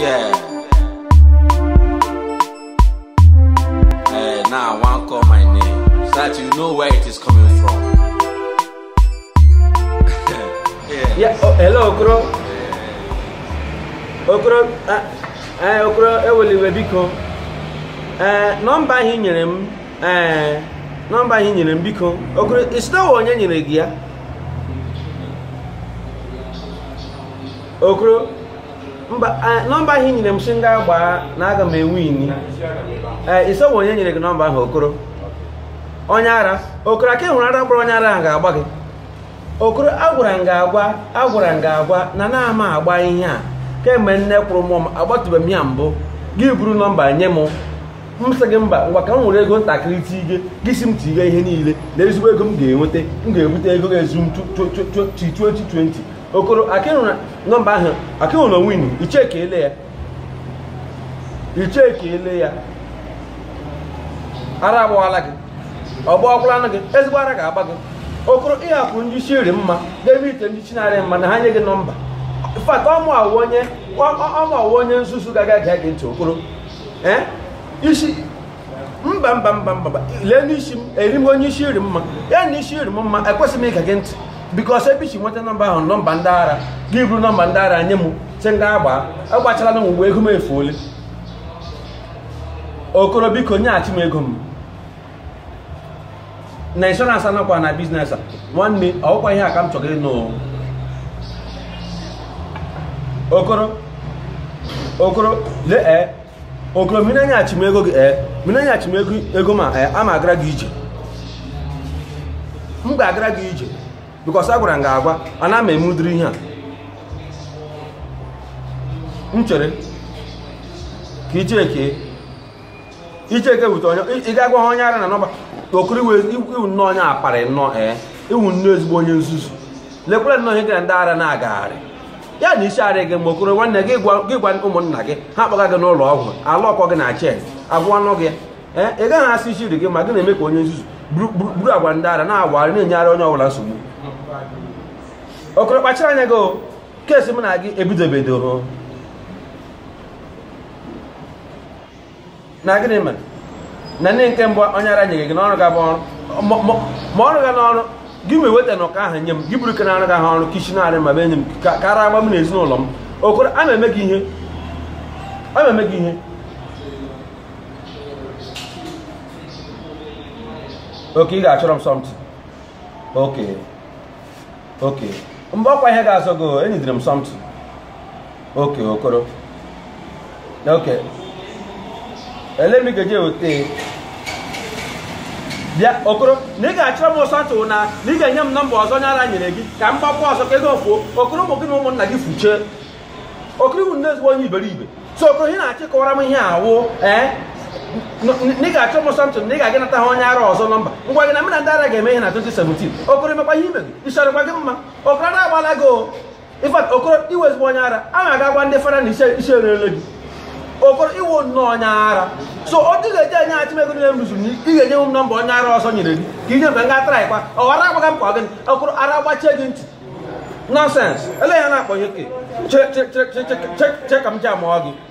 Yeah. Hey, now I wan call my name so that you know where it is coming from. yeah. yeah. Oh, hello, Okoro. Yeah. Okoro, ah, eh, Okoro, eweliwe eh, biko. Eh, nọmba ahụ nyere m, eh, nọmba ahụ nyere m biko. Okoro, isitawa onye nyere gị ya? Okoro. nọmba ahụ i nyere m si m gaa gbaa na aga m enwe ini ee iso onye nyere gị nọmba ahụ okoro onye ara okoro aka hụrụ ara gbara onye ara ahụ ga-agba gị okoro agwara m ga-agwa agwara m ga-agwa na na-ama agba ihe a kemgbe nne kwụrụ mụọ m agbatụbeghị m ya mbụ gị buru nọmba nye m m sị gị mba ngwa ka m nwere ego ntakịrị tige gị si m tige ihe niile na ezigbo ego m ga-enweta m ga-ebute ego ga-ezu m 20. okoro nọmba ahụ akịhụna win icheke ele ya icheke ele ya ara agbawala gị anụ gị ezigbo ara ga-agba gị okoro ịhapụ ndị isi iri mma debe ite ndị isi narị mma na ha nye gị nọmba fat ọmụ awụ onye ọmụ awụ onye nzuzu gaga gee gị ntị okoro isi mba mba mba mba lee n'isi m eri m onye isi iri mma ya na isi iri m mma ekwesịghị m ịga gị ntị bikos ebe isi nweta nọmba ahụ nọmba ndị ara gị bụrụ nọmba ndị ara nye m sị ndị agba agbachala na mgbe ego m efuole okoro biko nyeghachi m ego m na inshọransị anakwa na biznes a nwanne ọkwa ihe a ka m chọrọ ịnụ okoro okoro lee eh, okoro mmiri anyaghachi m ego gị ee eh, mmiri anyaghachi m ego eh, ma ee ama agara gị ije m ga-agara gị ije bikọs a gwara m ga agwa a na ama emudiri ihe a m chere ka icheke icheke wute onye ị ga gwa ha onye ara na nọmba okiri iwu nnọọ onye aparị nnọọ ee iwu nnọọ ezigbo onye nzuzu lekwere nnọọ ihe gara ndị ara na-agagharị ya na isi arị gị mgbe okoro nwanne gị gwa ụmụnna gị ha kpọga gị n'ụlọ ọgwụ ala ọkọ gị na chen agwụ ọnụ gị ee ị gaghị asị isi iri gị ma gị na-eme ka onye nzuzu buru agwa ndị ara na-agwarị na-enyere onye ọbụla nsogbu okoro kpachara anya gị keesi m na gị ebidobedoro na gịnị mere na ndị nke mbụ onye ara nyeghị gị n'ọrụ ga bụ ọrụ ma ọrụ gị n'ọrụ gị nwe weta na ụka ahụ nye m gị buru ke na-arụ ahụ ọrụ kichi arị ma be enye m kara agba m na ezinụlọ m okoro a na-eme gị ihe oke ị ga-achọrọ m something oke oke mgbe ọkwa ihe ga-azọ gị enyidere m something oke okoro oke ele m ga bịa okoro na ị ga-achọrọ m ụsọtụ na na ị ga-enye m nọmba ọzọ nyara nyere gị ka m gbakwa ọzọ ka ego okoro ụmụ gị na ụmụnna gị fuchee okoro bụ nne ezigbo onye iberibe so okoro ị na-achị kọwara m ihe awụ eh? ị ga-achọ m sọntụ na ị ga-aga nata ha onye ara ọzọ na ngwa gị na mụ ndị ara ga-eme ihe na 2017 okoro emekwa ihe imegị ịchọrọkwa gị mma okoro na-agbala gị ifat okoro iwe onye ara a na-aga agwa ndị fara na isi erele gị okoro iwu nnọọ onye ara so ọ dịghị eji enye achị ego niile m rụzuru ị ga-enye m nọmba onye ara ọzọ nyere gị ka inye m ka m gaa tara ịkwa ọghara agbaga m ka ọ gị okoro ara gbachie gị ntị nọnsens ele ya na-akpọ ya oke che ka m ji amụọ gị